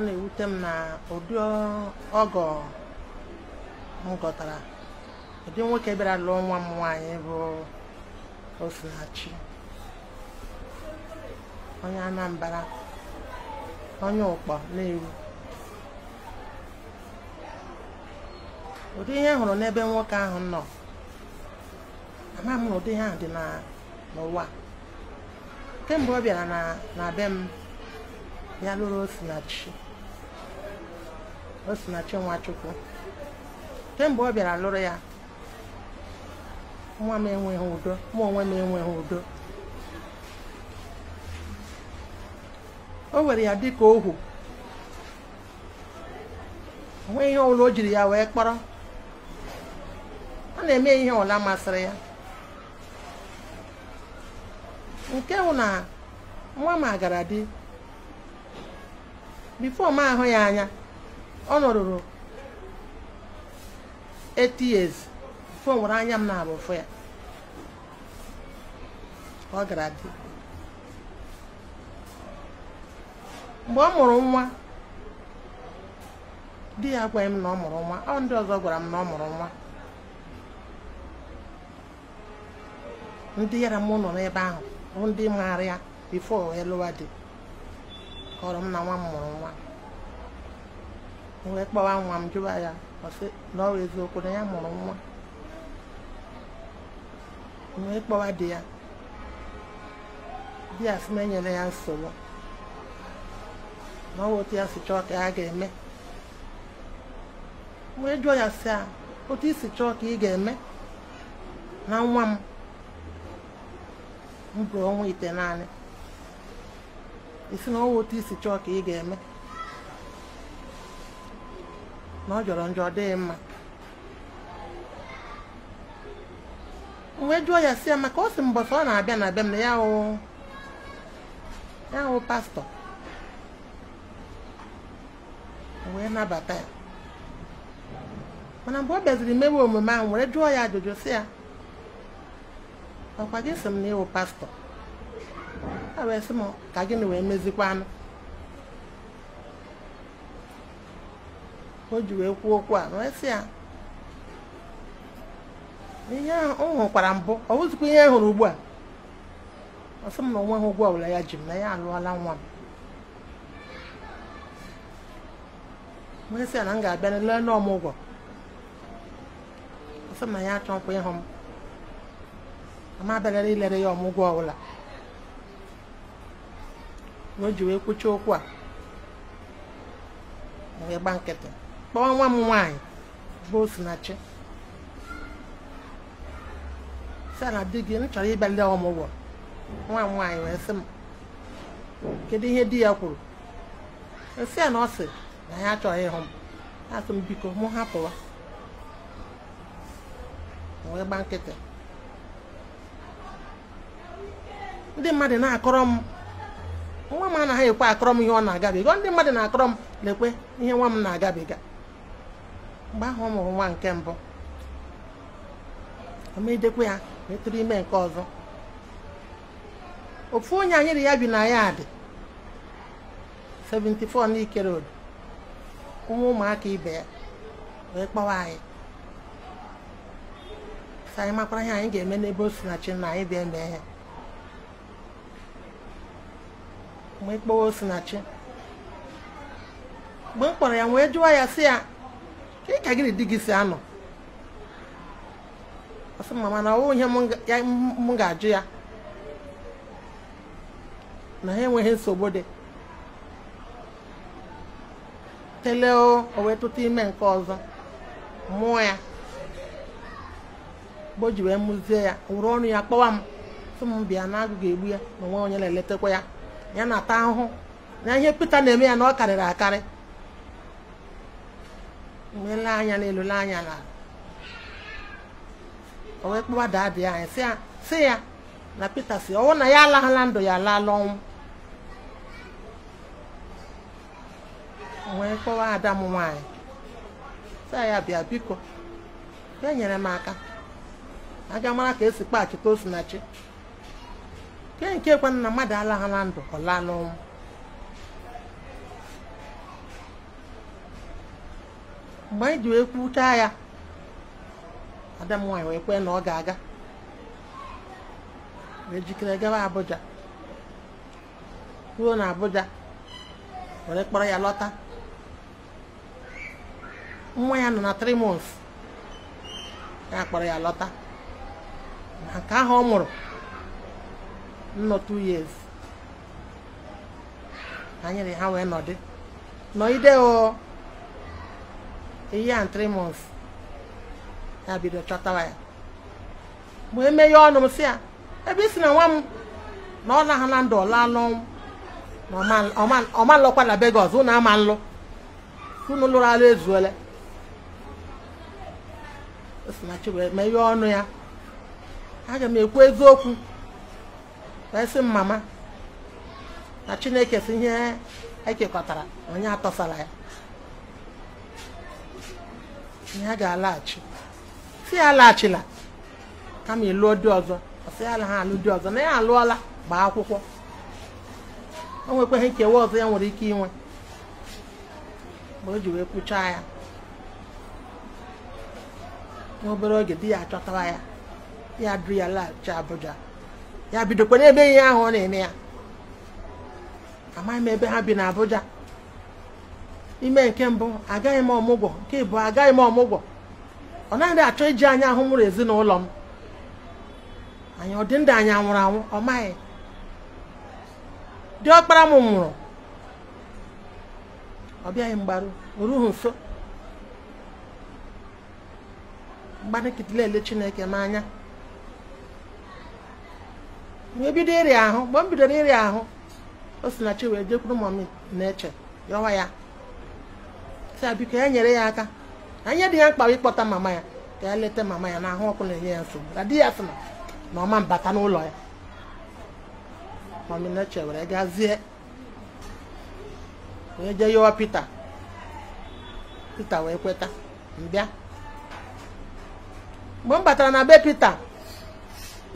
ọ na-ewute m na ụdị ọgọ m gọtara ụdị nwoke bịara lụọ nwa m nwaanyị bụ Osinachi onye Anambra onye ụkpọ na-ewu ụdị ihe hụrụ n'ebe nwoke ahụ nọ ama m na ụdị ihe ahụ dị n'ụwa kemgbe ọ bịara na be m ya lụrụ Osinachi Osinachi Nwachukwu kemgbe ọ bịara lụrụ ya nwa m enweghị udo mụ onwe m enweghị udo o were ya dịka ohu onwe ihe ọbụla o jiri ya wee kpọrọ ọ na-eme ihe ọla masịrị ya nke hụ na nwa m agara di bifo m ahụ ya anya ọ nọrụrụ 8 years fo nwere anya m na-abụ ya ọ gara dị mgbe ọ mụrụ nwa di ya agwaghị m na ọ mụrụ nwa ọ ndị ọzọ gwara m na ọ mụrụ nwa ndị yara m nọ n'ebe ahụ bụ ndị maara ya bifo elụwa dị kọrọ m na nwa m mụrụ nwa wee kpọwa nwa m jụwa ya ọsị na ọ eziokwu na ya mụrụ nwa wee kpọwa di ya di ya sị na enyere ya nsogbu na ọwa otu ya si chọọ ka ha ga-eme wee jụọ ya si a otu isi chọọ ka ị ga-eme na nwa m m bụrụ ọnwa ite naanị isi na ọwa otu isi chọọ ka ị ga-eme na ọ jọrọ njọ ọ dịghị mma wee jụọ ya si ya maka o si mbọsị ọ na-abịa na abịa m na ya hụ ya pastọ wee nabata ya mana mgbe ọ bịaziri mewe omume ahụ were jụọ ya ajụjụ si ya ọkwa gị si m na ịwụ pastọ a wee sị m ka gịnị wee mezikwanụ o ji wee kwuo okwu a wee ya ihe ahụ ọ hụkwara mbụ ọ bụzikwa ihe hụrụ ugbu a ọ m na onwe ha ụgwọ wụla ya ji m na ya alụọla nwa m wee sị ya na m ga-abịa na ọmụgwọ ọ m na ya achọ nkwa ịhụ m ama abịarara ilere ya ọmụgwọ ọbụla na o ji wee kwụcha okwu a wee gba nkịtị kpọọ nwa m nwaanyị bụ Osinachi di gị m chọrọ ịbịa ọmụgwọ nwa m nwaanyị wee sị m kedu ihe di ya kwuru esi ya na ọ sị na ya achọghị ịhụ m asị m biko mụ hapụwa wee gba nkịtị ndị mmadụ na-akọrọ m nwa m anaghị ekwe akọrọ m ihe ọ na-agabiga ndị mmadụ na-akọrọ m lekwe ihe nwa m na-agabiga mgbe ahụ ọ mụrụ nwa nke mbụ omedekwa ya metụrụ ime nke ọzọ ofu onye anyị ri ya bi na ya dị 74 n'ikere road Ụmụ ụmụaka ibe ya wee kpọwa anyị anyị makwara ihe anyị ga-eme n'ebe o si na chi na anyị bịa mee ya mgbe kpọwa osinachi mgbe m kpọrọ ya wee jụwa ya sị ya Kedu ka gị na di gị si anọ ọsị mma mana ọ ihe m ga-ajụ ya na ha enweghị nsogbu dị tele o wee ime nke ọzọ mụọ ya mgbe o ji wee mụzie ya wụrụ ọnụ ya kpọwa m sị m bịa na agụ egbu ya na onwe onye na-eletakwa ya ya na-ata ahụhụ na ihe Pita na-eme ya na ọ karịrị akarị meela anya n'elu lee anya na o wee kpọwa anyị e, sị ya na peter si ọwụ na ya alaghala ndụ ya alaala ọnwụ wee kpọwa ada m nwaanyị e. sị ya bịa biko ya nyere m aka aga mara ka esi kpaghachite osinachi kee nke kwana na mmadụ alaghala ndụ ọ laala ọnwụ mgbe anyị e ji wee kwuchaa ya ada m wee kwee na ọ ga-aga ejikere jikere gawa Abuja ruo na Abuja were kpọrọ ya lọta nwa ya nọ na 3 months ya kpọrọ ya lọta na nke ahụ ọ mụrụ nnọ 2 years ha nyere ha wee nọdị nọgide a year and three ya bido chọtawa ya ma emeghe ọnụ si ya ebe isi na nwa m na ọ naghị na ndụ ọlalụ na ọmalụkwa na be ọzọ ama nlụ unu lụrụ alụ ezuole osinachi wee meghe ọnụ ya aga m ekwu eziokwu wee sị m mama na chineke si ihe ekekọtara onye atọsara ya na ga-alaghachi si ya alaghachila kama ịlụọ di ọzọ ọsị ya ha alụ di ọzọ na ya alụọla gbaa akwụkwọ o nwekwaghị nkewa ọzọ ya nwere ike inwe mgbe o ji wee kpụchaa ya n'obere oge di ya achọtara ya ya duru ya laghachi Abuja ya bidokwa n'ebe ihe ahụ ọ na-eme ya amaghị m ebe ha bi n'Abuja ime nke mbụ agaghị m ọmụgwọ nke ịbụ agaghị m ọmụgwọ ọ naghị achọ iji anya ahụ mụrụ ezinụlọ m anyị ọ dị ndụ nwụrụ anwụ ọ maghị ọkpara m nwụrụ ọ bịaghị mgbaru oruhu nso ele chineke m anya wee bido ịrịa ahụ mgbe m bidoro ịrịa ahụ o si na chi wee jekwuru m na-eche yọwa ya sa biko ya e nyere ya aka anya dị ya mkpa ịkpọta mama ya ka ya leta mama ya n'ahụ ọkụ na-enye ya nsogbu na di ya sị na ọma mbata n'ụlọ ya maminache were gazie onye jee yọwa Pita Pita wee kweta mbịa mgbe m batara na be Pita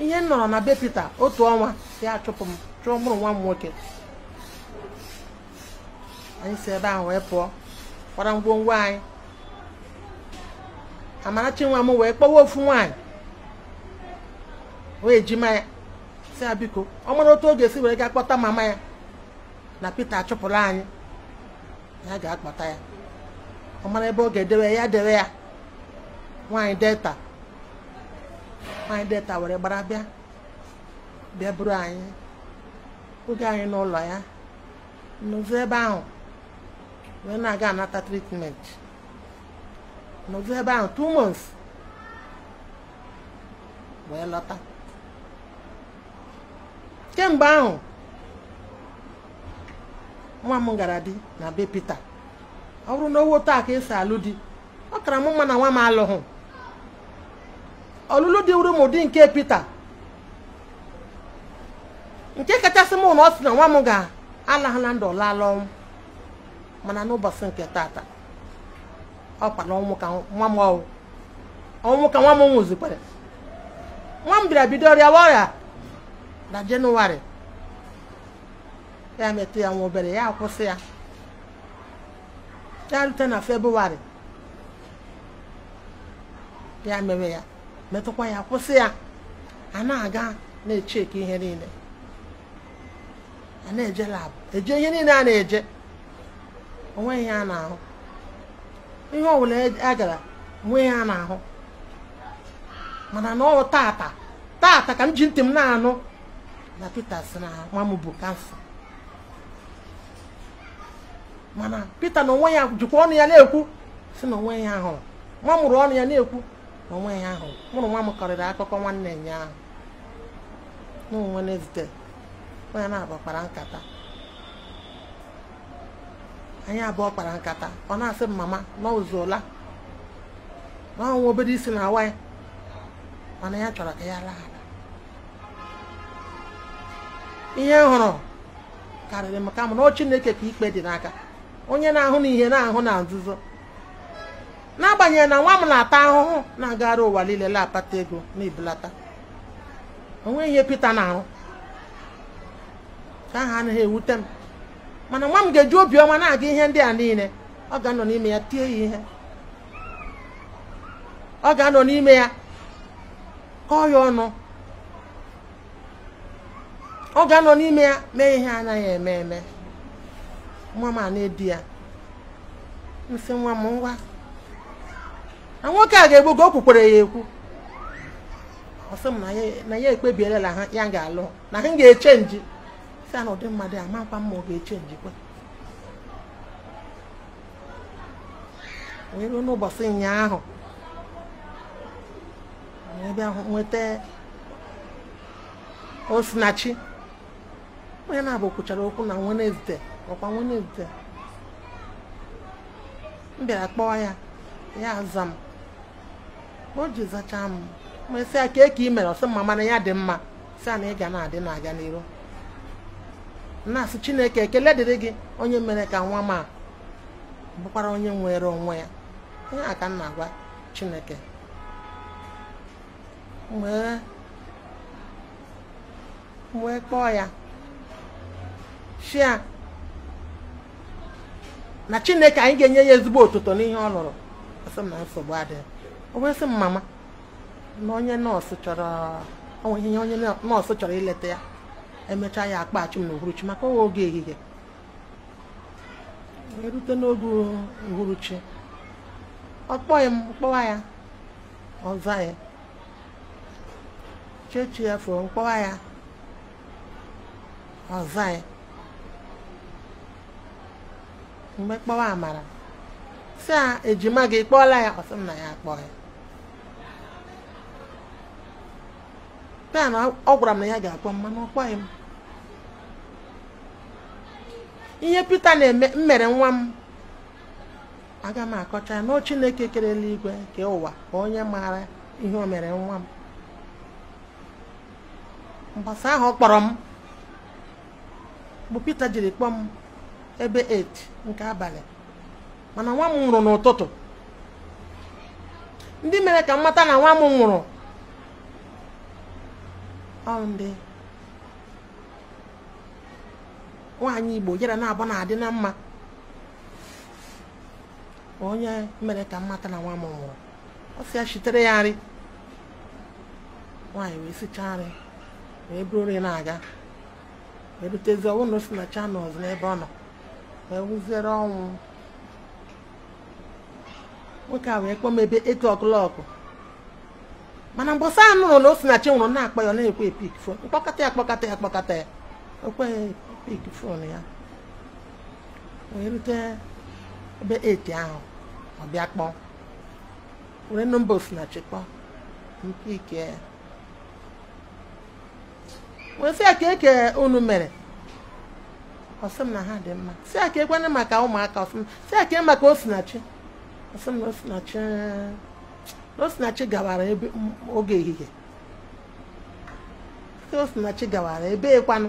ihe m nọrọ na be Pita otu ọnwa ya achụpụ m chụọ mụrụ nwa m nwoke anyị si ebe ahụ wee pụọ kwara ngwongwo anyị Amarachi nwa m wee kpọwa ofu nwaanyị wee ejima ya si ya biko ọ mara otu oge si were gaa kpọta mama ya na Peter achụpụrụ anyị ya ga-akpọta ya ọ mara ebe ọ ga-edewe ya dewe ya nwaanyị delta nwaanyị delta were gbara bịa bịa buru anyị oge anyị n'ụlọ ya n'ụzọ ebe ahụ wee na-aga anata treatment nọdụ ebe ahụ two months wee lọta kemgbe ahụ nwa m gara di na be Peter ọ bụrụ na owo taa ka esi alụ di ọ kara m mma na nwa m alụghị ọlụlụ dị wuru mụ ụdị nke Peter nke kachasị mụ na ọ sị na nwa m ga-alahụ na ndụ lala ọnwụ mana n'ụbọchị nke tata ọ na ọnwụ ka nwa m ọnwụ ka nwa m nwụzikwara nwa m bịara bido ọrịa ọrịa na jenụwarị ya metụ ya nwa obere ya kwụsị ya ya rute na febrụwarị ya mere ya metụkwa ya kwụsị ya a na-aga na-echeki ihe niile a na-eje labụ eje ihe niile a na-eje onwe ihe a ihe ọbụla a e gara onwe ihe a na-ahụ mana na ọ tata tata ka m ji ntị m na-anụ na Pita si na nwa m bụ kansa mana Pita na onwe ya jikwa ọnụ ya na-ekwu si na onwe ya ahụ nwa mụrụ ọnụ ya na-ekwu na onwe ya ahụrụ mụrụ nwa m kọrịrị akụkọ nwanne ya ahụ na onwe Wednesday onye na-agbakpara nkata anyị abụọ kpara nkata ọ na-asị m mama n'ụzọla n'ọnwa obere isi na awa ya mana ya chọrọ ka ya laa ihe m hụrụ karịrị m kama na ọ ka ikpe dị n'aka onye na-ahụ na ihe na-ahụ na nzuzo n'agbanyeghị na nwa m na-ata ahụhụ na-agagharị ụwa niile na ego na ibelata onwe ihe Pita na-arụ ka ahụ anaghị ewute m mana nwa m ga-eji obiọma na-aga ihe ndị a niile ọ ga-anọ n'ime ya tie ya ihe ọ ga-anọ n'ime ya kọọ ya ọnụ ọ ga-anọ n'ime ya mee ihe anaghị eme eme nwa m a na-edi ya nsị nwa m ngwa na nwoke a ga-egbu o ya ekwu ọ m na ya ekpebielela ha ya ga-alụ na ha ga-echenji sị ya ụdị mmadụ ya makwa mma ọ ga wee ruo n'ụbọchị ụnyaahụ wee bịa nweta osinachi onye na-abụ kwuchara okwu na Wenezde ọkwa Wenezde m bịara kpọọ ya ya aza m o ji zachaa m ma sị ya kee ka ị e mere mma mana ya dị mma sị ya na ị ga na-adị na-aga n'iru na-asị chineke ekele dịrị gị onye mere ka nwa ma bụkwara onye nwere onwe ya ihe a ka m na-agwa chineke wee kpọọ ya shia na chineke anyị ga-enye ya ezigbo ụtụtụ n'ihe ọ lụrụ na nsogbu adịghị o wee sị m mama na onye nọọsụ chọrọ onye nọọsụ chọrọ ileta ya emechaa ya akpa achụm na maka owe oge ehihie erute n'oge uhuruchi ọkpọghị m kpọwa ya ọza ya chechi ya fụọ mkpọwa ya ọza ya mgbe kpọwa amara si a ejima gị kpọọla ya ọsị m na ya akpọ ya a na ọ gwara m na ya ga-akpọ m mana ọ m ihe Pita na mmere nwa m aga m akọcha na Chineke kere eluigwe nke ụwa ka onye maara ihe o nwa m mgbasa ahụ kpọrọ m bụ Pita jiri kpọọ m ebe 8 nke abalị mana nwa m nwụrụ n'ụtụtụ ndị mere ka m mata na nwa m nwụrụ ọ ndị nwaanyị igbo yara na abụ na-adị na mma onye mere ka mmata na nwa m nwụrụ ọ sị ya chitere ya nri nwaanyị wee sichaa nri wee buru nri na-aga erutezi ọnwụ na o si na chanels n'ebe ọ nọ wee wụziere ọnwụ nwoke a wee kpọọ m ebe etu ọkụlọkụ mana mgbọsa anụrụ na o si na chi nwụrụ na-akpọ ya ọ na-ekwe epik fon mkpọkọta ya kpọkọta ya kpọkọta ya pik phone ya wee rute ebe eti ahụ ọ bịa kpọọ were nọmba osinachi kpọọ mpike ya wee sị ya ka eke unu mere ọsị m na ha dị mma sị ya ka ekwenye maka ụmụaka ọsị m sị ya ka e maka osinachi ọsị m na osinachi osinachi gawara ebe oge ehihie osinachi gawara ebe ekwanụ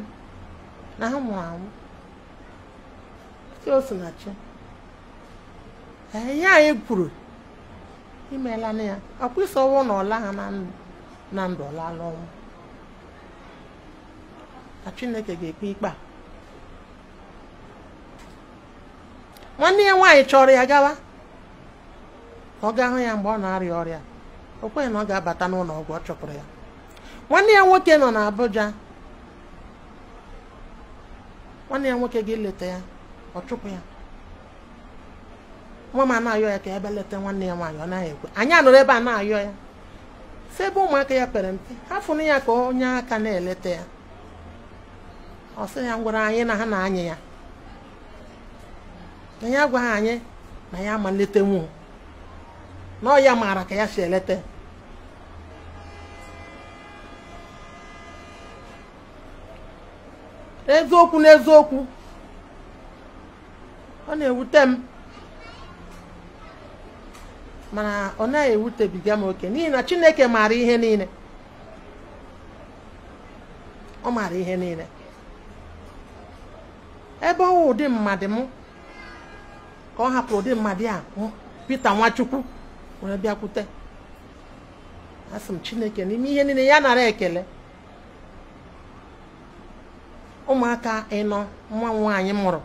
na ha mụrụ amụ chi ihe anyị kwuru imeela na ya ọkwa isi na ọla ha na ndụ ọlala ọnwụ na chineke ga-ekpe ikpe a nwanne ya nwaanyị chọrọ ya gawa ọ gaa hụ ya mgbe ọ na-arịa ọrịa o kweghị na ọ ga-abata n'ụlọ ọgwụ ọ chọpụrụ ya nwanne ya nwoke nọ na Abuja nwanne ya nwoke ga-eleta ya ọ chụpụ ya nwa m ana ya ka ebe leta nwanne ya nwaanyị ọ naghị ekwe anyị anụrụ ebe a na-ayọ ya si ebe ụmụaka ya pere mpe ha fụrụ ya ka onye aka na-eleta ya ọ sị ya ngwara anyị na ha na-anyị ya ya agwaghị anyị na ya ma nwuo na ọ ya maara ka ya si eleta n'eziokwu n'eziokwu ọ na-ewute m mana ọ naghị ewutebiga m oke n'ihi na chineke maara ihe niile ọ maara ihe niile ebe ọ ụdị mmadụ m ka ọ hapụrụ ụdị mmadụ a pete Nwachukwu nwere bịakwute asị m chineke n'ime ihe niile ya nara ekele ụmụaka ịnọ nwa nwaanyị mụrụ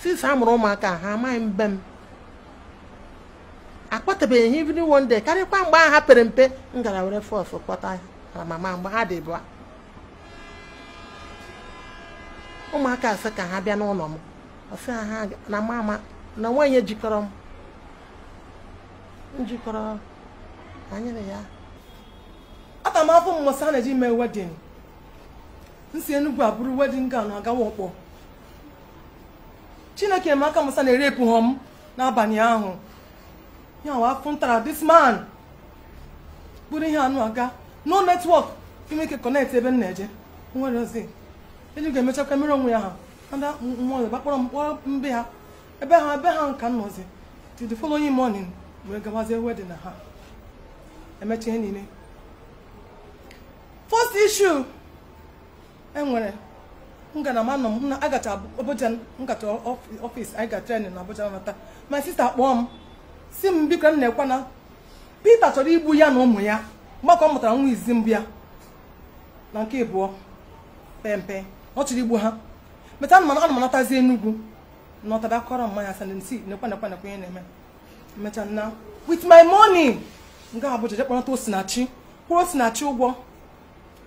since a mụrụ ụmụaka ha amaghị mbe m akpọtabeghị ha even one day karịkwa mgbe a ha pere mpe m gara were fọsụ kpọta ha mama mgbe ha dị bụ ụmụaka asị ka ha bịa n'ụlọ m ọsị ha na mama na nwaanyị ejikọrọ m njikọrọ anyere ya ata m afọ mmụsa na-eji mee wedin nsi enugwu abụrụ wedin na agawa ọkpọ chineke emeaka musa na-erepụ hom n'abalị ahụ ya wa afọ ntara this man bụrụ ihe anụ aga no netwọk imeke kọnekt ebe m na-eje nwere ozi eji ga-emechakwa mmiri onwe ya ha ada mmụọ gbakpọrọ m kpọrọ mbe ha ebe ha ebe ha nka nọzi till the following morning wee gawazie wedin na ha emecha ihe niile first issue enwere ngalaba nọ m na agacha Abuja nkata ọfịs anyị ga tren na Abuja nata ma sista kpọọ m si m biko m na-ekwe na chọrọ igbu ya na ụmụ ya mgbakọ ọ mụtara nwa izi mbụ ya na nke ịbụọ pempe ọ chọrọ igbu ha meta anụmanụ anụmanatazi Enugu nọtara akọrọ mmanya sandensi nekwe nekwe nekwe ihe na-eme mecha na with my money nga Abuja jekpọnata osinachi kwụrụ osinachi ụgwọ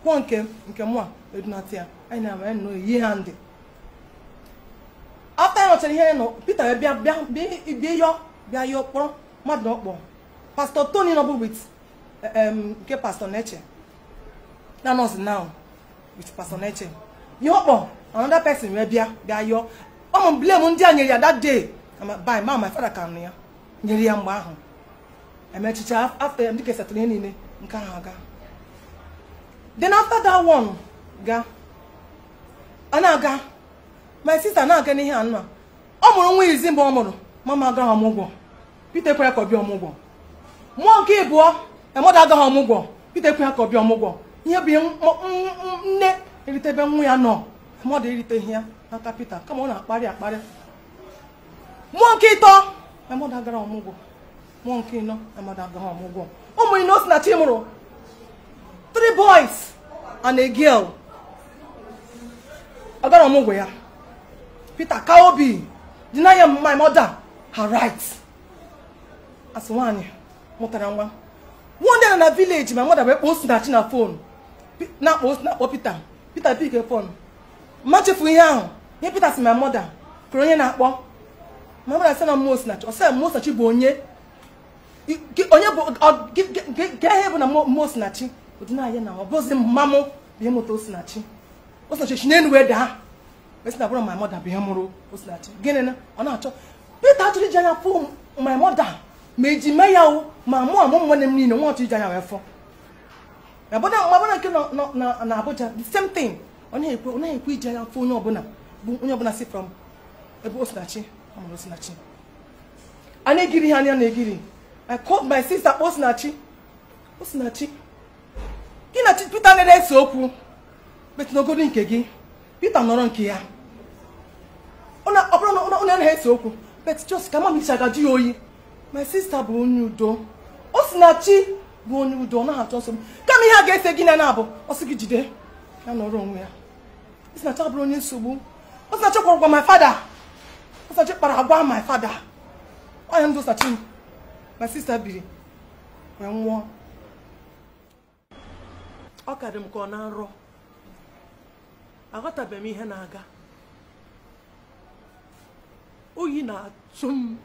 nwa nke nke mụa edunata ya anyị na-ama ya nnọọ yi ha ndị afta ya nọchara ihe nọ Peter wee bịa bịa bịa yọ bịa yọ kpọrọ mmadụ ọkpọ pastọ Tony nọbụ wit nke pastọ Neche na nọọsụ now with pastọ Neche ihe ọkpọ another pesin wee bịa bịa yọ ọ mụ blame ndị a nyere ya that day by ma my father ka nụ ya nyere ya mgbe ahụ emechicha afta ya ndị kesatụrụ ihe niile nke ahụ aga then after that one ga a na-aga my sister na-aga n'ihe anụ a ọ mụrụ nwa izi mgbe ọ mụrụ mama agaghị ọmụgwọ Peter kwere ka ọ ọmụgwọ mmụọ nke ịbụọ emada agaghị ọmụgwọ Peter kwere ka ọ bịa ọmụgwọ ihe bụ nne eritebe nwa ya nọ mmadụ eriteghị ya n'aka Peter kama ọ na-akparị akparị mmụọ nke ịtọ emada agaghị ọmụgwọ mmụọ nke ịnọ emada agaghị ọmụgwọ ụmụ ino si na chi mụrụ three boys and a girl agara ọmụgwọ ya Peter Kaobi deny ya my mother her rights as nwaanyị mụtara nwa one day na village my mother wee kpọọ Osinachi na phone na-akpọ Osinachi Peter Peter big phone mma chefu ihe ahụ ihe Peter si my mother kụrụ onye na-akpọ my mother sị na mmụọ Osinachi ọsị mmụọ Osinachi bụ onye onye bụ gee ihe bụ na mmụọ Osinachi odinaya na ọ bụzi mmamụ bụ ịmụta Osinachi Osinachi n'elu wee daa esina bụrụ my mother bụ ihe mụrụ Osinachi gịnị na ọ na-achọ Peter achọrọ iji anya fụ my mother ma eji mee ya o ma mụ amụ nwanne m niile nwa ọchọ iji anya wee fọ nke na Abuja the same thing ọ na-ekwe ọ na-ekwe iji anya fụ onye ọbụla bụ onye ọbụla si from ebe Osinachi ọ mụrụ Osinachi a na-egiri ha anya na-egiri I called my sister Osinachi Osinachi gị na Peter na-ese okwu metụnogoro nke gị Peter nọrọ nke ya ọ bụrụ na onye anaghị ese okwu bet jos ka mama isi agaji ya oyi my sista bụ onye udo o si na chi bụ onye udo ọ naghị achọ nsogbu kama ihe a ga-ese gị na na-abụ ọsị gị jide ya nọrọ onwe ya osinacha bụrụ onye nsogbu osinacha kwụrụ gwa my fada osinacha kpara agwa my father ọnya ndụ osachi my sista biri wee nwụọ ọ ka dị m ka ọ na nrọ aghọtabem m ihe na-aga oyi na-atụ m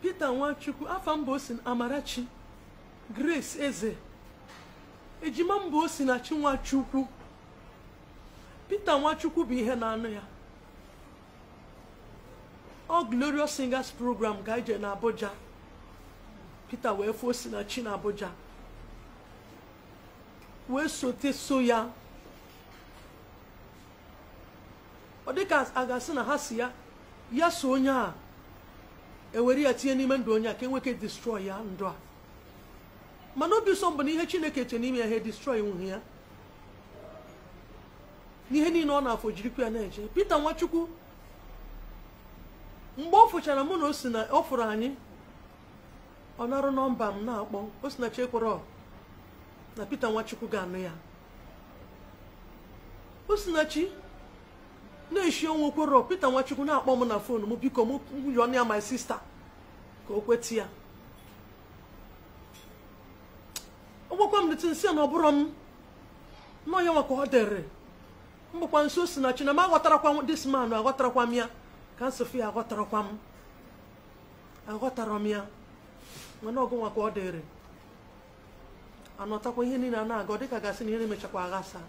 Pita Nwachukwu afa mba osi Amarachi Grace Eze ejima mba osi na chi Nwachukwu Pita Nwachukwu bụ ihe na-anụ ya ọ Glorious Singers Program ga-eje na Pita wee fụọ Osinachi na Abuja wee sote so ya ọ dịka a ga-asị na ha si ya ya so onye a ewere ya tinye n'ime ndụ onye a ka enweke destroy ya ndụ a mana obi ụsọ mbụ na ihe Chineke che n'ime ya ha destroy nwunye ya n'ihe niile ọ na-afọ jirikwa ya na-eje Pita Nwachukwu mgbe ọ fụchara mụ na o si na ọ fụrụ anyị ọ na-arụ nọmba m na-akpọ Osinachi Ekworo na Peter Nwachukwu ga-anụ ya Osinachi na-eshi ọnwa Ekworo Peter Nwachukwu na-akpọ m na fon m biko m ọnụ ya my sista ka o kweta ya ọ gwakwa m dịtị nsị na ọ bụrụ m nọọ ya nwa ọ dịrị mgbakwa nso Osinachi na m aghọtarakwa dis man aghọtarakwa m ya ka nsịfụ ya aghọtarakwa m aghọtara m ya mana ọgụnwa ka ọ dịrị anọtakwa ihe niile a na-aga dịka gasị na ihe na-emechakwa aghasa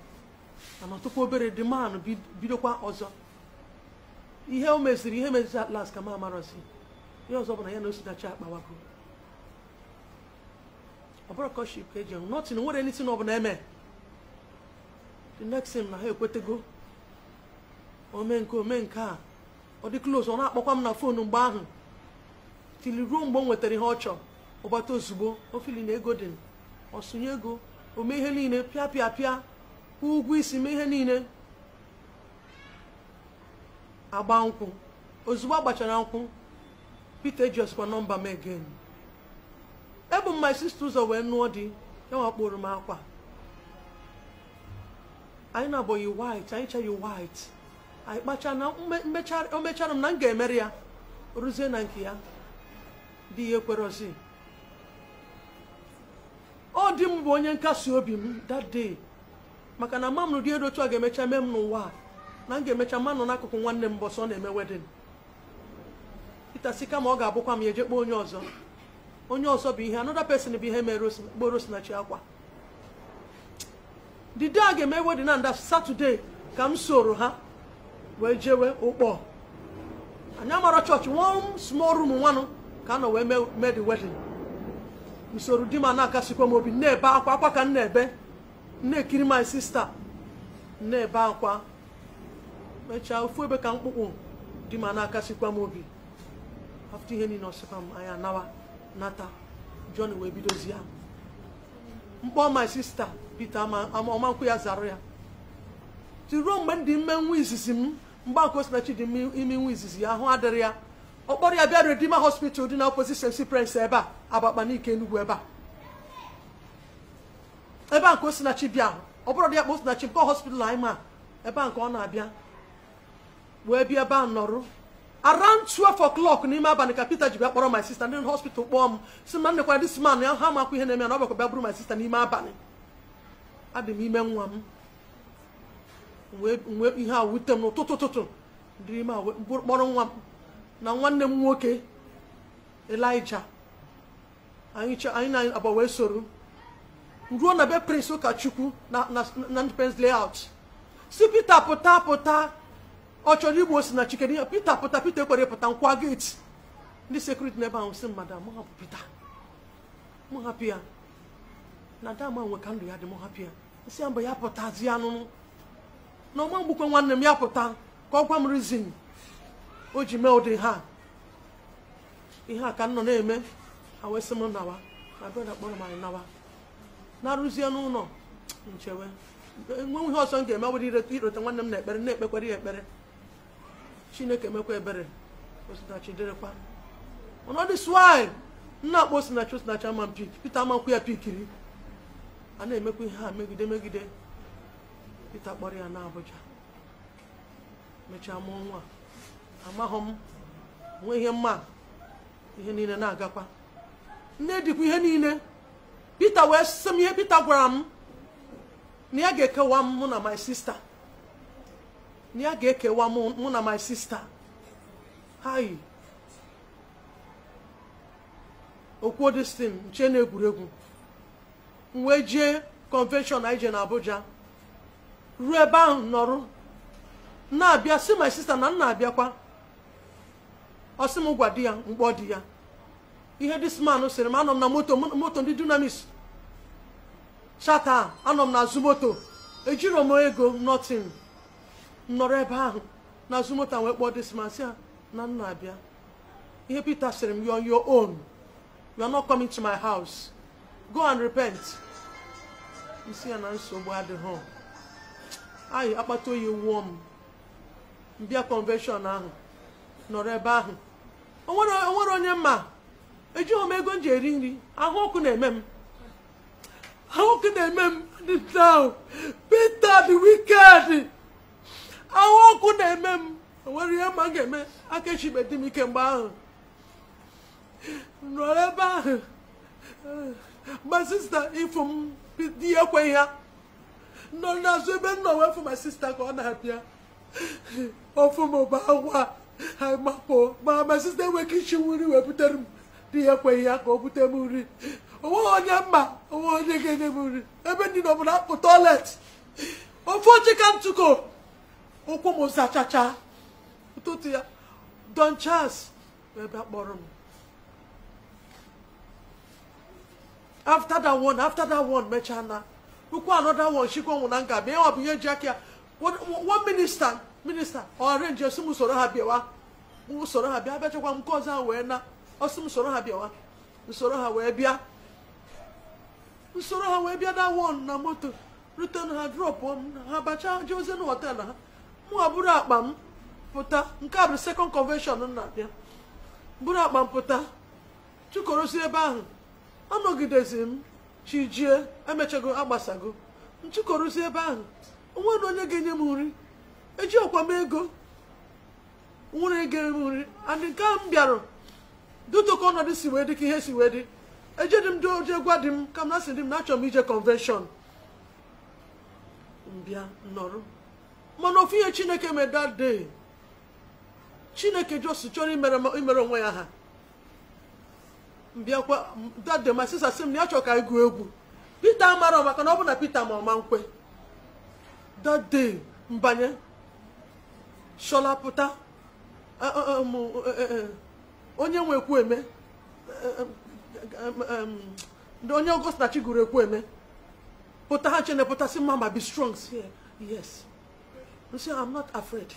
anọtụkwa obere dị manụ bidokwa ọzọ ihe o meziri ihe meziri atlas ka m amarọzi ihe ọzọ bụ na ya na osinachi akpawago ọ bụrụ kọship ka eji enwe nọtin nwere na ọ bụla eme the next na ha ekwetego ome nke ome nke a ọ dị close ọ na-akpọkwa m na fon mgbe ahụ tili ruo mgbe o nwetara ihe ọ chọrọ ụgbata ozugbo ofili na ego dị ọsụnye ego ome ihe niile pịa pịa pịa kwụ ụgwọ isi mee ihe niile agba nkwụ ozugbo agbachara nkwụ Peter ji ọsịkwa nọmba m egen ebu m my sister ụzọ wee nụọ dị ya wakporo m akwa anyị na abụghị yi white anyị chaghị white anyị kpacha na o mechara m na m ga ya rụzie na nke ya di ya ekwerozi ọ dị m bụ onye nkasi obi m that day maka na mama m dị elu otu a ga-emecha mee m n'ụwa na m ga-emecha mma n'akụkụ nwanne m bọsọ na-eme wedin Peter sị kama ọ ga-abụkwa m eje onye ọzọ onye ọzọ bụ ihe another person bụ ihe mere kpọrọ Osinachi akwa the day a ga-eme wedin na nda Saturday ka m soro ha wee jewe ụkpọ anyị amara chọọchị one small room nwanụ ka a nọ wee mee the wedding usoro di ma na-akasikwa m obi na-ebe akwa akwa ka m na-ebe na-ekiri my sista na-ebe akwa mechaa ofu ebe ka mkpụkpụ di m na-akasikwa m obi afta ihe niile ọsịkwa m anya nawa nata jon wee bidozi ya mkpọ my sista Peter ọmankwụ ya zara ya tiruo mgbe m dị mme nwa izizi m mgbakosinachi dị ime nwa izizi ya ahụ adịrị ya ọkpọrọ ya bịa redima hospital dị na opposite St. Prince ebe a Abakaliki Enugu ebe a ebe a nke Osinachi bịa ọ bụrụ dị ya kpa Osinachi nke hospital anyị ma ebe a nke ọ na-abịa wee bịa ebe a nọrụ around 12 o'clock n'ime abalị ka Peter ji bịa kpọrọ my sister ndị hospital kpọọ m si m na nnekwara dis man ya ha amakwa ihe na-eme na ọ bịakwa bịa bụrụ my sister n'ime abalị adị m ime nwa m wee ihe a wute m n'ụtụtụ ụtụtụ dịrị ime kpọrọ nwa m na nwanne m nwoke elija. anyị na anyị agba wee soro ruo na be prince ụkọchukwu na na ndependence layout si pita pụta pụta ọ chọrọ igbo si na chikere pita pụta pita ekwere pụta nkwa gate ndị sekuriti n'ebe ahụ si mmadụ mụ hapụ pita mụ hapụ ya na dama nwe ka ndụ ya dị mụ hapụ ya si ya ya pụta ya anụnụ na ọma mgbukwe nwanne m ya pụta ka ọ gwa m rizin o ji mee ụdị ha ihe a ka m nọ na-eme awesị m nawa na brọda kpọrọ m anyị nawa na-arụzie n'ụlọ nchewe enweghị ihe ọzọ m ga-eme ọ bụrụ ireta nwanne m na ekpere na-ekpekwara ya ekpere chineke emekwa ebere osinachi dịrịkwa ọnọdụ swai nna akpọ osinachi osinachi ama m pik ya pikiri a na-emekwa ihe a megide megide pita kpọrọ ya na abụja mechaa mụọ nwa amaghị m nwee ihe mma ihe niile na-agakwa nne dịkwa ihe niile Peter wee sị ihe Peter gwara m na ya ga-ekewa mụ na my sister na ya ga-ekewa mụ na my sister hai okwuo destin nche na egwuregwu m jee convention anyị na Abuja ruo ebe ahụ nọrụ na-abịa si my sister na m na-abịakwa ọ sị m gwa di ya mkpọ di ya ihe dis man sịrị m anọ m na moto moto ndị dunamis chata anọ m na azụ moto ejiro m ego notin nọrọ ebe ahụ na azụ moto wee kpọọ dis man na nna abịa ihe Peter sịrị m you on your own are not coming to my house go and repent isi ya na nsogbu adịghị anyị akpata oyi wụọ m mbịa convention ahụ nọrọ ebe ahụ onwere onye mma ejighị m ego m ji eri nri ahụ ọkụ na-eme m ahụ ọkụ na-eme m now Peter the wicked ahụ ọkụ na-eme m nwere ihe ma ga-eme aka echibe dị m ike mgbe ahụ nọrọ ebe ahụ ma sista ifu m di ekwe ya nọ n'azụ ebe nna nọ fụ ma sista ka ọ na-abịa ofu m ụba agwa ha makpoo ma ma sista enweghị ike ichi nri wee butere m di ya ekweghị ya ka o bute m nri onweghị onye mma onwe onye ga-enye m nri ebe ndị nọ m na-apụ tọilet ofe oche ka ntụko ụkwụ m zachacha ụtụtụ ya don chance ebe akpọrọ m after that one after that one mechaa na ukwu another one chikwa nwụ na nga bịa ịwa bụ ihe ji aka ya one minista minista ọ arrange esi m usoro ha bịawa usoro ha bịa abịachakwa m nke ọzọ wee na ọ soro ha bịawa usoro ha wee bịa nsoro ha wee bịa da won na moto rute na ha drọpụọ m ha bacha jee ozi na họtelụ ha mụ bụrụ akpa m pụta nke a bụ sekọnd kọnvenshọn na abịa bụrụ akpa m pụta chụkorosi ebe ahụ anọgidezi m chijie emechago agbasago nchụkorosi ebe ahụ onwe na onye ga-enye m nri eji ọkwa m ego nwere ga m nri andị nke ahụ m bịara dịtụ ka ọnọdụ si wee dị ka ihe si wee dị ejedị m doje gwa di m ka m na sị m na m ije convention mbịa nọrụ mana ofu ihe chineke mee dat day chineke jos chọrọ imere onwe ya ha mbịakwa that day my sister sị m na ya chọrọ ka anyị egwu Peter amarọ maka na ọ bụ na Peter ma ọma nkwe that mbanye shola pụta e, e, e, onye nwe ndị onye Augusta ekwu eme pụta ha chene pụta sị ma be strong si yes say I'm not afraid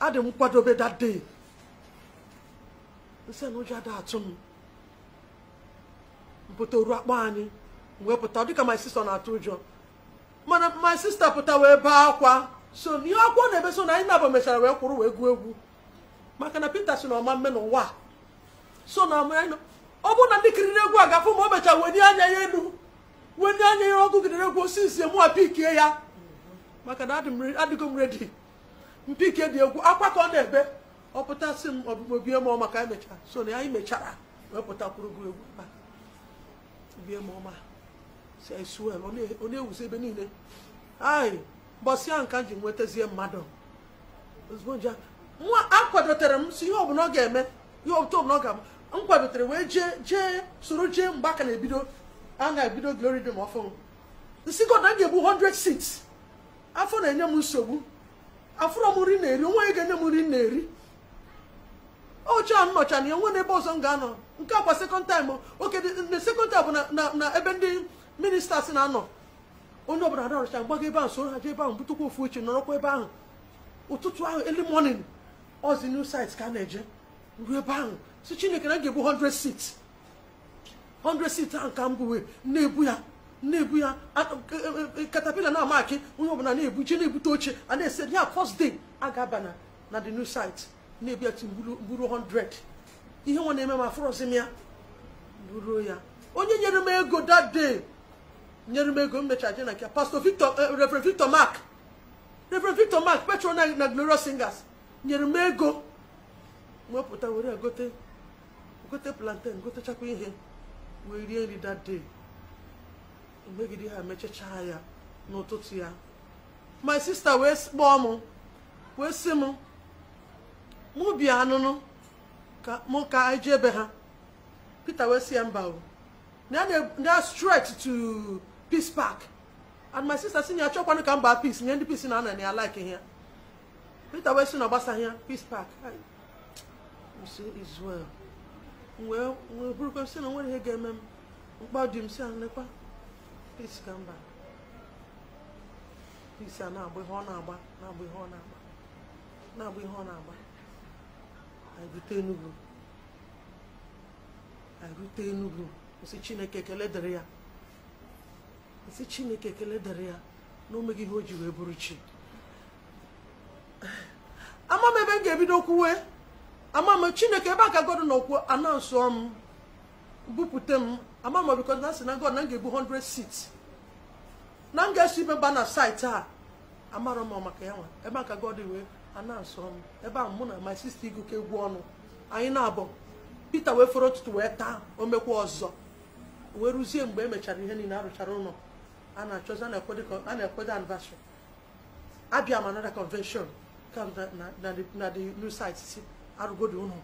adị m kwadobe that day say na ụjọ ada atụ m mpụta oru akpa anyị wee pụta dịka my sister na-atụ ụjọ mana my sister pụta wee bee akwa so ihe akwụkwọ na-ebe so na anyị nabụ mechara wee kwụrụ wee gụọ egwu maka na peter si na ọma mme n'ụwa so na ọ bụrụ na ndị kiriri egwu a gafụ ma o mechara wenye anya ya elu wenye anya ya ọgụ gidere egwu osisi mụwa pikie ya maka na adịgo m redi mpike dị egwu akwa ka ọ na-ebe ọ pụta si m ọbụmobie m ọma ka anyị mechara so na anyị mechara wee pụtakwuru gụ egwu bie m ọma si anyị suwel ọ na-ewuzi ebe niile anyị mbọsị nka ka m ji nwetazie mmadụ ozugbo nje nwa akwadotere m si ihe ọbụla ọ ga-eme ihe otu ọbụla ọ ga-abụ m kwadotere wee jee jee soro jee mgbe aka na-ebido a na-ebido glory dị m ọfụ nsi god m ga-egbu 100 seats afọ na-enye m nsogbu afụrọ m nri na-eri onwe ga-enye m nri na-eri ọcha a n'ọcha na ya nwe n'ebe ọzọ m ga-anọ nke akwa sekọnd taim oke na sekọnd taim bụ na ebe ndị si na-anọ onye ọbụla na gbaga mgbago ebe ahụ soro ha jee ebe ahụ butukwa ofu oche nọrọkwa ebe ahụ ụtụtụ ahụ eli morning the new site ka a na-eje ruo ebe ahụ si chineke na ga-ebu 100 seats 100 seats ahụ ka m bụwe na-ebu ya na-ebu ya katapila e, e, e, na amakị onye ọbụla na-ebu je na-ebute oche na-ese first day a ga-aba na the new site na-ebu ya timburu 100 ihe nwa na-eme ma afụrọzi m ya buru ya onye nyere m ego that day nyere m ego m mechara je na nke pastor victor eh, reverend victor mark reverend victor mark petrol na glorious singers nyere m ego mwepụta were gote gote plantain gotechakwa ihe wee rie nri that day megide ha mechachaa ya n'ụtụtụ ya my sister wee kpọọ m wee sị m mụ bịa anụnụ ka mụ ka anyị ji ebe ha Peter wee si ya mba o na straight to Peace Park and my sister sị na ya chọkwanụ ka mba peace nye ndị peace na ana ya like ya Peter wee sị na ọ ya Peace Park Israel wee bụrụkwa sị na nwere ihe ga-eme m mkpa dị m si anekwa peace ka peace a na-agba ihe ọ na-agba na-agba ihe ọ na-agba na-agba ihe ọ na-agba anyị rute Enugu anyị Enugu Chineke ekele dịrị ya nsị Chineke ekele dịrị ya na ihe o ji wee bụrụ chi ama m ebe m ga-ebido kwuwe ama m chineke ebe aka god nọ kwuo anansụọ m bupute m ama m bikọ na sị na god na m ga-ebu 100 seats na m ga-eso ibe mba na site a amarọ m maka ya nwa ebe aka god wee anansụọ m ebe ahụ mụ na my sister iguke egwu ọnụ anyị na-abọ pita wee fọrọ ụtụtụ wee taa omekwa ọzọ wee ruzie mgbe e mechara ihe niile arụchara ụlọ a na-achọzi a na-ekwede anniversary abịa m another convention kam na di news site si arụgodo unu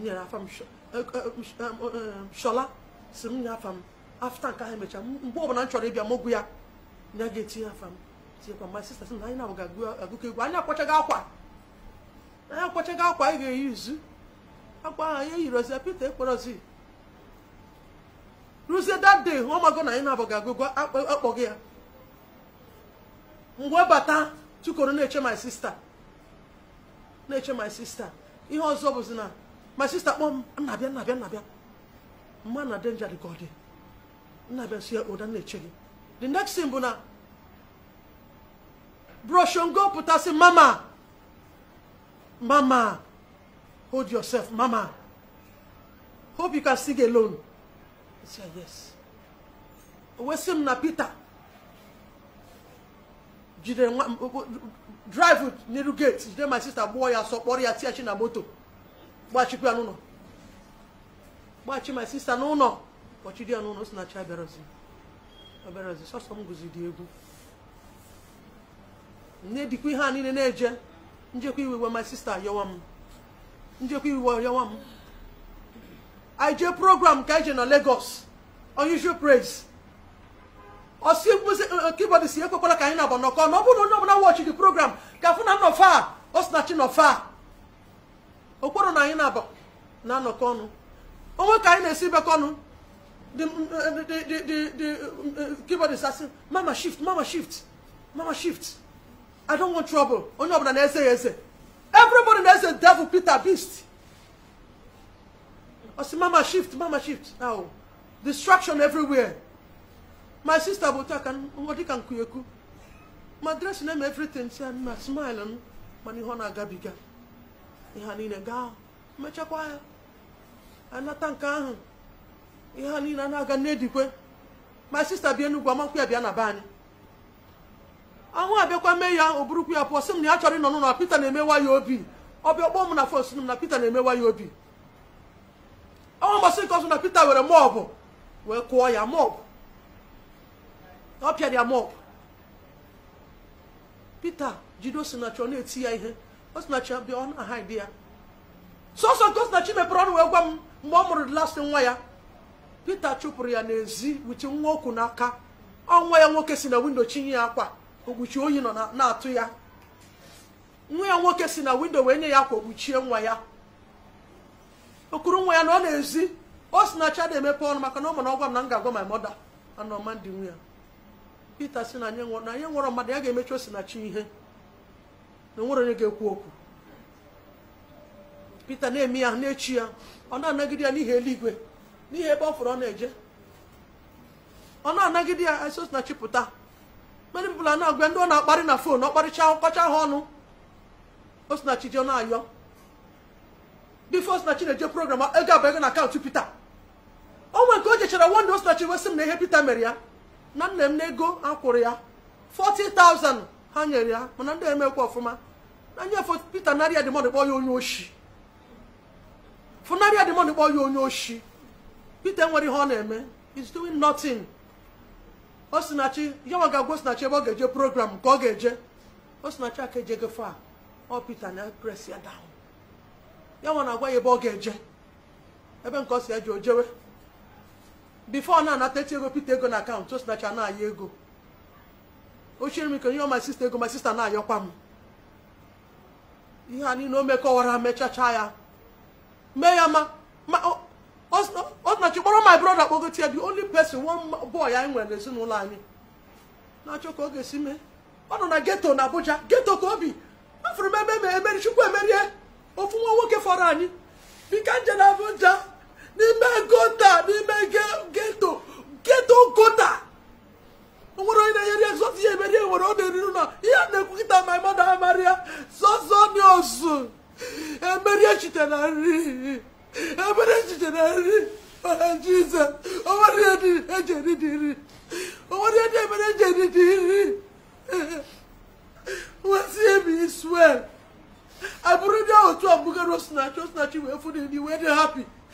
nyere afa m shọla si m nye afta nke ahụ emechaa mgbe ọbụla m chọrọ ịbịa m ya na ga-etinye afam tinyekwa mgbe si na anyị na-abụ ga-agụkọ egwu anyị akwachaghị akwa anyị akwachaghị akwa anyị ga-eyi izu akwa ahụ eyiri ozi pete ekporozi that day na anyị na-abụ ga ya mgbe bata tụkọrọ na-eche my sister na-eche my sister ihe ọzọ bụzi na my sister kpọọ m nnabịa nnabịa nnabịa mma na denja dị ka ọ dị nnabịa si ya ụda na-eche gị the next thing bụ na broshongo pụtasị mama mama hold yourself mama hope you can get alone I say yes o wee sị m na Peter Jide nwa drive n'iru gate jide my sister gbuo ya sọ kpọrọ ya tiachi na moto gbachikwu ya n'ụlọ gbachi my sister n'ụlọ kpọchi ya n'ụlọ si na chi abịarozi abịarozi sọsọ m guzi dị egwu nne dịkwa ihe a niile na-eje njekwa iwe my sister yọwa m njekwa iwe yọwa m i jee program ka ije e na Lagos unusual praise ọsi eh, kibọdụ si ekwekwana ka anyị na-agba n'ọkọ na ọ bụrụ na onye ọbụla wọchi dị program ka afụ na nnọfa a ọ sị na chi nọfa a okporo na anyị na-anọkọ ọnụ onwe ka anyị na-esi bekọ ọnụ eh, eh, kibọdụ sasị mama shift mama shift mama shift i don't want trouble onye ọbụla na-eze ya eze everybody na-eze devil peter beast ọ sị mama shift mama shift now distraction everywhere my sister bụ otu a ka ọ dịka nkụekwu ma dress na-eme everything si ma smile m mana ihe ọ na-agabiga ihe niile gaa mechakwa ya anata nke ahụ ihe niile a na-aga n'edikwe my sister bie n'ugwu amakwu ya bịa na be anyị ahụ abịakwa mee ya o burukwu ya pụọ sị m na ya chọrọ ịnọ n'ụlọ Peter na-emewa ya obi ọbịa kpọọ m na fon sị m na Peter na-emewa ya obi ọ mbọsị nke ọzọ na Peter were mọbụ wee kụọ ya mọbụ ọ pịara ya mọp Pita jide Osinachi ọ na-eti ya ihe Osinachi bịa ọ na-aha ide ya sọsọ nke Osinachi mepere ọnụ wee gwa m mgbe ọ mụrụ lasị nwa ya Pita chụpụrụ ya n'ezi wuchi nwa okwu n'aka ọnwa ya nwoke si na windo chinye ya akwa okpuchi oyi nọ na-atụ ya nwa ya nwoke si na windo wee nye ya akwa okpuchie nwa ya okuru nwa ya na ọ na-ezi Osinachi na-emepe ọnụ maka na ọ mana ọ gwa m na m ga-agwa my mother ana ọma ndị nwa ya Pita si na anyị nwụrọ mmadụ ya ga-emechi osinachi ihe na onwere onye ga-ekwu okwu Pita na-eme ya na-echi ya ọ na-anagide ya n'ihi eluigwe n'ihi ebe ọ fụrụ ọ na-eje ọ na-anagide ya esi osinachi pụta mmadụ bụla na-agwa ndị ọ na-akparị na fon ọ kparịcha ọkọcha ha ọnụ osinachi ji ọ na-ayọ bifo osinachi na-eje program ego abụ ego na akaụntụ Pita o nwere nke o jechara wonde osinachi wesị m na ihe Pita mere ya na nna m n'ego ha kwụrụ ya 40,000 ha nyere ya mana ndị emekwa ọfụma na nye Peter narị demond kpọ ya onye oshi funarịa demond kpọ ya onye oshi Peter nwere ihe ọ na-eme is doing nothing osinachi yawa ga-agwa osinachi ebe ọ ga-eje program ka ọ ga-eje osinachi aka ejego fa ọ Peter na press ya down yawa na-agwa ya ebe ọ ga-eje ebe nke ọ si eji o jewe bifo na-anata ego pete ego na akaụntụ o sinacha na ego ochere m ike onye my sister ego my sister na-ayọkwa m ihe a niile o mekọwara mechacha ya mee ya ma ọ nachi kpọrọ my brother kpọgotie the only person one boy anyị nwere n'ezinụlọ anyị na-achọ ka ọ ga-esi mee ọ nọ na geto na Abuja geto ka obi afụrụ m ebe emeri chukwu emerie ofu nwa nwoke fọrọ anyị bika nje na Abuja n'ime gota n'ime geto geto gota nwere onye na-enyere ya sọsọ ihe emere nwere ọ na-eriru na ihe a na-ekwu kịta ma mmadụ amarị ya sọsọ ndị ọzụ emeri echiche na nri emeri echiche na nri jizọs o nwere ihe dị eji eri dị nri o ihe dị emere eji eri dị nri nwesị ebi iswel abụrụ ndị ahụ otu abụgara osinachi osinachi wee fụ dị ndị wee dị hapi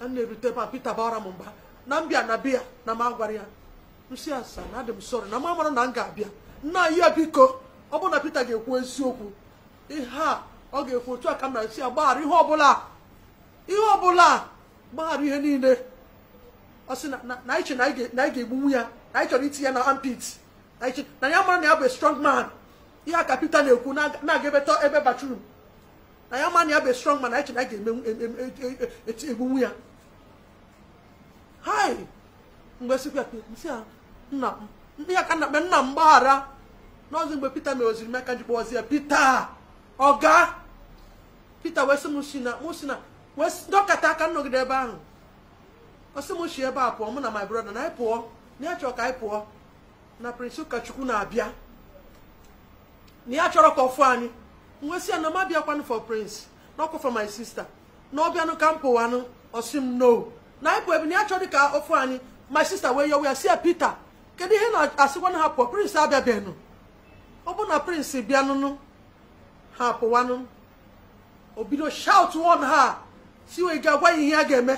a na-erute ebe a Pita bara m mba na mbịa na biya na m agwara ya nsi asaa na adị m sọrọ na m amara na m ga-abịa nna ya biko ọ bụrụ na Pita ga-ekwu eziokwu ihe a ọ ga-ekwu otu a ka m na-esi ya gbaghara ihe ọbụla ihe ọbụla gbaghara ihe niile ọ sị na anyị che na anyị ga-egbunwu ya na anyị chọrọ iti ya na ampit na ya mara na ya bụ strong man ihe a ka Pita na-ekwu na-aga ebeta ebe batrum na ya mara na ya bụ strong man na anyị che na anyị ga-egbunwu ya hai mgbe sikwa e nna ya ka na-akpe nna m gbaghara n'ọzọ mgbe pita mere oziri maka ji kpọzi ya pita ọga pita wee sị m si na mụ si na wee dọkata aka nnọgide ebe ahụ ọ m si ebe a pụọ mụ na my brother na anyị pụọ na ya chọrọ ka anyị pụọ na prịnsị ụkọchukwu na-abịa na ya chọrọ ka ọfụ anyị wee sị ya na m abịakwanụ for prince na ọkwa for my sister na ọ ọbịanụ ka m pụwanụ ọ sị m no na anyị bụ na achọ dị ka ofu anyị my sister wee yowe ya si ya Peter kedu ihe na-asịkwa na ha pụọ prince abịabeghị ọ bụ na prince bịanụnụ ha pụwanụ o bido shout one ha si wee ga-agwa ihe ya ga-eme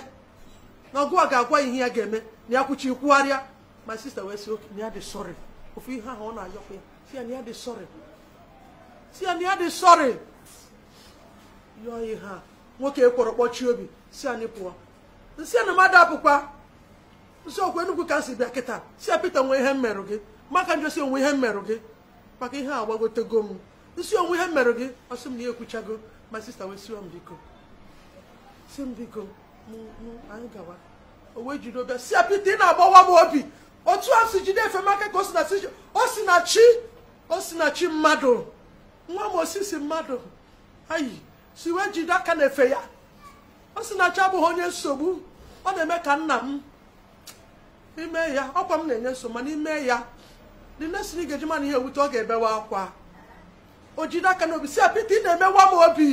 na ọgụwa ga-agwa ya ihe ya ga-eme na ya kwuchi kwugharịa my sister wee si oke na ya dị sorry ofu ihe ahụ ọ na-ayọkwa ya si ya na ya dị sorry si ya na ya dị sorry yọọ ihe a nwoke e kpọrọ kpọchie obi si anyị pụọ nsị na mmadụ apụkwa nsị okwu enugwu ka nsị bịa kịta si ya pete nwe ihe mmerụ gị maka njọ si onwe ihe mmerụ gị maka ihe a gbagotego m nsị onwe ihe mmerụ gị ọsị m na ya ekwuchago ma sista wee siwa m biko si m biko anyị gawa o wee jiri obịa si ya pete ị na-agbawa m obi otu a si jide efe maka ka o si na chi o si na chi mmadụ nwa m osisi mmadụ ayi si wee jide aka na efe ya ọ sị na abụghị onye nsogbu ọ na-eme ka nna m ime ya ọkwa m na-enye nso mana ime ya dị nesiri ga-eji mana ihe ewute ọ ga-ebewa akwa o jide aka n'obi si apịta ị na-emewa m obi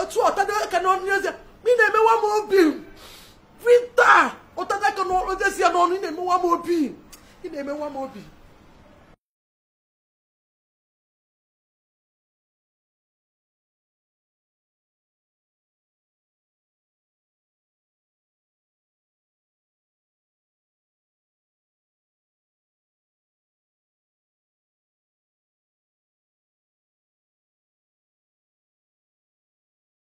otu ọtada aka n'ọnụ eze ị na-emewa m obi pita ụtada aka n'ọnụ eze ya n'ọnụ ị na-emewa m obi ị na-emewa m obi